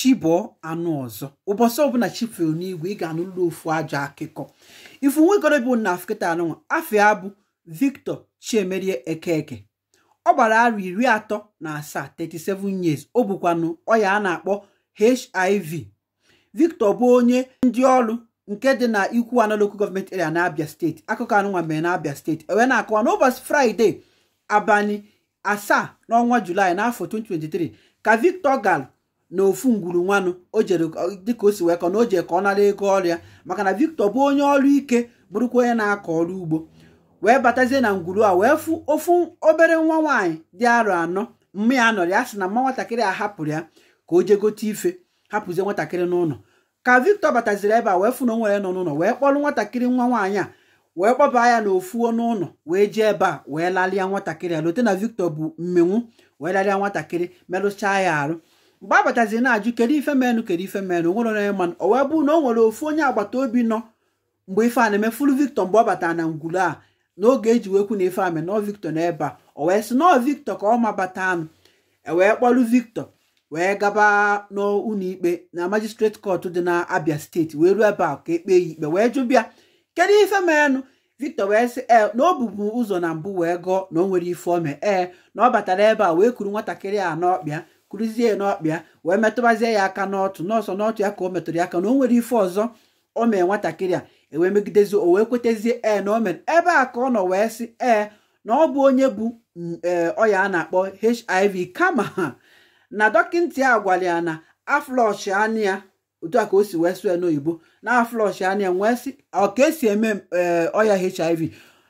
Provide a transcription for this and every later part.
chibụọ anụ ọzọ ụbọchị ọbụla chifere n'igwe ị ga-anụlụ ofu ajọ akụkọ ifu bụ na afkịta anụnwa afia bụ victor chiemerie ekeke ọ gbara arọ iri atọ na asaa 37 years ọ bụkwanụ ọya a na-akpọ hiv victor bụ onye ndị ọrụ nke dị na ikwu analoku gọọmenti area na steeti akụkọ anụnwa mere na steeti ewee na-akọwa n'ụbọchị fraịde abalị asaa n'ọnwa julaị n'afọ 2023 ka victor gal na ofu ngwuru nwanụ o jere dịka o si wee kọ na o jere ka ọ nara ego ọrịa maka na Victor bụ onye ọrụ ike bụrụkwa onye na-akọ ọrụ ugbo wee batazie na ngwuru a wee fụ ofu obere nwa nwaanyị dị arọ anọ mma ya nọrọ ya sị na mma nwatakịrị a hapụrụ ya ka o jee gote ife hapụzie nwatakịrị n'ụlọ ka Victor bataziri ebe a wee fụ na o nọ n'ụlọ wee kpọrọ nwatakịrị nwa nwaanyị a wee kpọba ya n'ofu n'ụlọ wee jee ebe a wee lalịa nwatakịrị a lote na Victor bụ mmenwu wee lalịa nwatakịrị merụchaa ya arụ mgbe a batazi na-ajụ kedu ife menụ kedu ife menụ nwere onye manụ o wee bụrụ na o nwere ofu onye agbata obi nọ mgbe ife a na-eme fulu Victor mgbe ọ batara na ngwuru a n'oge eji wekwu na ife ame nọ Victor ebe a o wee sị nọọ Victor ka ọ mabata anụ ewee kpọrụ Victor wee gaba n'ụlọ ikpe na magistrate court dị na Abia steeti wee ruo ebe a ka ekpee ya ikpe wee jụbia kedu ife menụ Victor wee sị ee eh, na o ụzọ na mbụ wee gụọ na o nwere ife ome ee eh, na ọ batara ebe a wee kuru nwatakịrị a n'ọkpịa kụrụzie n'ọkpịa wee metụbazie ya aka n'ọtụ n'ọsọ n'ọtụ ya ka o metụrụ ya aka na o nwere ife ọzọ o mee nwatakịrị a ewee megidezie o wee kwetezie e na o mere ebe a ka ọ nọ wee sị ee na ọ bụ onye bụ mm, e, ọya a na-akpọ hiv kama na dọkịta a gwara ya na aflọsh anya otu a ka o si wee sụọ n'oyibo na aflọsh anya ya wee sị ọ ka esi eme e, ọya hiv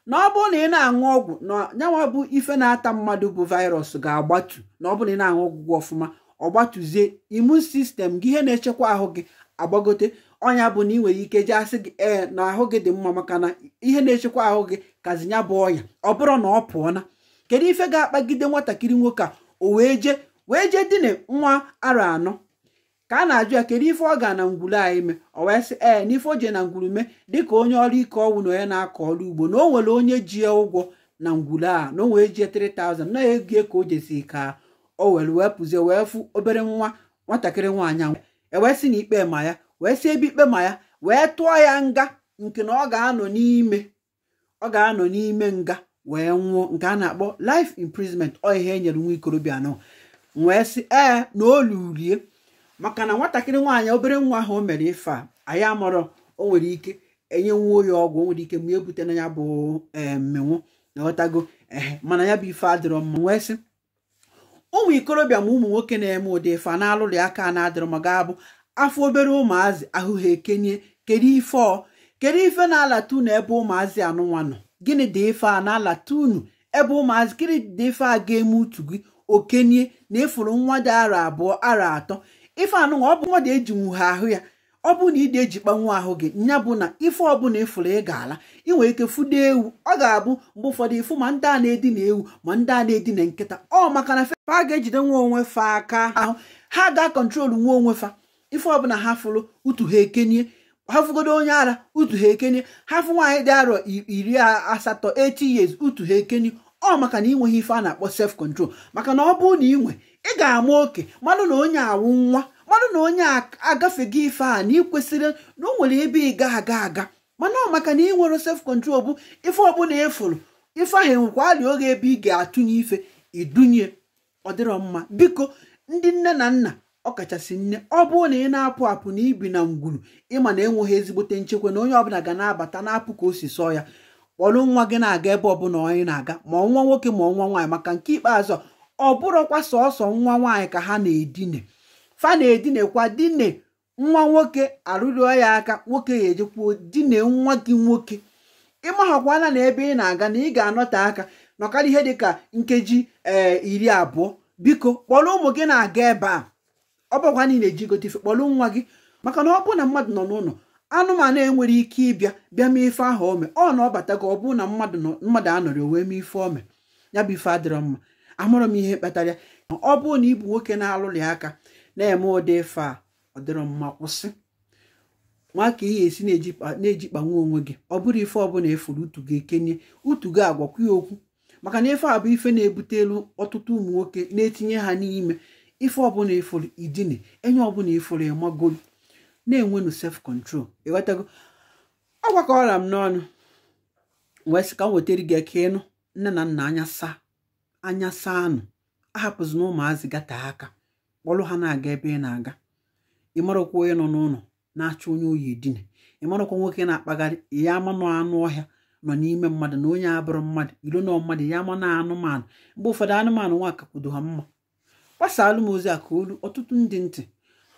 na ọ bụrụ na ị na-aṅụ ọgwụ na nyanwa bụ ife na-ata mmadụ bụ virus ga-agbatu na ọ bụrụ na ị na-aṅụ ọgwụgwọ ọfụma ọ gbatuzie imun sistem gị ihe na-echekwa ahụ gị agbagote ọnya bụ na ị nwere ike jee asị gị ee na ahụ gị dị mma maka na ihe na-echekwa ahụ gị kazi nya bụ ọnya ọ bụrụ na ọ pụọ na kedu ife ga-akpagide nwatakịrị nwoke a o wee jee wee jee dine nwa arọ anọ ka a na-ajụ ya kedu ife ọ ga na ngwuru anyị mee ọ wee sị ee eh, n'ife o jee na ngwuru mee dịka onye ọrụ ike ọnwụ na onye na-akọ ọrụ ugbo na o nwere onye ji ụgwọ na ngwuru a na o wee jie 3000 na ego ka o jesi ka o were wee pụzie wee fụ obere nwa nwatakịrị nwaanyị anwụ ewee sị na ikpe ma ya wee sị ebe ikpe ma ya wee tụọ ya nga nke na ọ ga-anọ n'ime ọ ga-anọ n'ime nga wee nwụọ nke a na-akpọ life imprisonment ọ ihe e nyere nwa ikorobịa nọ wee sị ee eh, na maka na nwatakịrị nwaanyị obere nwa ahụ o mere ife a anyị amụrụ o nwere ike enyenwuo ya ọgwụ o nwere ike mgbe ebute na ya bụ eh, mmenwu na ehe mana ya bụ ife adịrọ mma nwee sị ụmụ ikorobịa ma ụmụ nwoke na-eme ụdị ife a na-alụrụ aka a na-adịrọ ma ga-abụ afọ obere ụmụazị ahụ ha ekenye kedu ife ọ kedu ife na-alata ebe ụmụazị anụnwa nọ gịnị dị ife a na-alata ebe ụmụazị gịnị dị ife a ga-eme utu gị okenye na-efuru nwa dị ara abụọ ara atọ ife anụnwa ọ bụ mmadụ eji nwuhe ahụ ya ọ bụ na ịdị ejikpanwu ahụ gị nya bụ na ife ọbụla ịfụrụ ị ga-ala ị nwere ike fụdo ewu ọ ga-abụ mgbe ụfọdụ ịfụ ma ndị a na-edina ewu ma ndị a na-edina nkịta ọ maka na fefa a ga-ejide nwa onwe fa aka ahụ ha ga-akọntrolu nwa onwe fa ife ọbụla ha fụrụ utu ha ekenye ha fụgodo onye ara utu ha ekenye ha fụ nwaanyị dị arọ iri asatọ 80 years utu ha ekenye ọ maka na ị ife a na-akpọ self control maka na ọ bụrụ na ị nwe ị ga-ama oke mmanụ na onye awụ nwa mmanụ na onye gị ife a na ịkwesịrị na ọ nwere ebe ị ga aga aga mana ọ maka na ị nwere self control bụ ife ọbụla efuru ife ahụ enwekwa alị oge ebe ị ga-atụnye ife idunye ọ dịrọ mma biko ndị nne na nna ọkachasị nne ọ bụrụ na ị na-apụ apụ na ibi na ngwuru ịma na enweghị ezigbote nchekwa na onye ọbụla ga na-abata na-apụ ka o si sọọ ya kpọrọ nwa gị na-aga ebe ọbụla onye na-aga ma ọnwa nwoke ma ọnwa nwaanyị maka nke ikpeazụ ọ bụrụkwa sọsọ nwa nwaanyị ka ha na-edine fa na-edinekwa dine nwa nwoke arụrịọ ya aka nwoke ya ejekwuo dine nwa gị nwoke ịmahakwana na ebe ị na-aga na ị ga-anọte aka nọkara ihe dịka nkeji ee eh, iri abụọ biko kpọrọ ụmụ gị na-aga ebe a ọ bụkwa niile eji gote ife kpọrọ nwa gị maka na ọ bụ na mmadụ nọ n'ụlọ anụmanụ enwere ike ịbịa bịa mee ife ahụ ome ọ na ọ gị ọ bụ na mmadụ anọrị wee mee ife ome ya bụ ife adịrọ mma amụrụ m ihe kpatara ọ bụrụ na ịbụ nwoke na alụlị aka na-eme ụdị ife a ọ dịrọ mma kwụsị ka ihe esi na-ejikpanwe onwe gị ọ bụrụ ife ọbụla efuru utu gị ekenye utu gị agwakwu ya okwu maka na ife a bụ ife na-ebute elu ọtụtụ ụmụ nwoke na-etinye ha n'ime ife ọbụla efuru idine enye ọbụla efuru emagolu na-enwenu sef kọntrol ịghọtago ọ gwakọrọ m n'ọnụ wee sị ka m wetara gị aka ịnụ nne na nna anya saa anya saa nụ ahapụzi na ụmụazị gata aka kpọrọ ha na-aga ebe ị na-aga ị marakwa onye nọ n'ụlọ na-achọ onye oyi edina ị marakwa nwoke na-akpagharị ya amanụ anụ ọhịa nọ n'ime mmadụ na onye abụrụ mmadụ ilo na mmadụ ya amanụ anụmanụ mgbe ụfọdụ anụmanụ nwa akakwudo ha mma gbasaalụ m ozi a ka olu ọtụtụ ndị ntị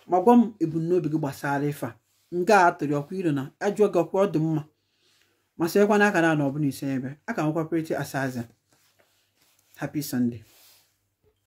ma gwa m ebumnobi gị gbasara ife a nke a tụrụ ọkwa ilo na ajụọ gị ọkwa ọ dị mma ma sịekwana akara na bụla ise ebe a ka nwekwapụrịta asaza Happy Sunday.